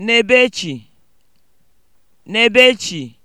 Nebechi e (Nebechi) e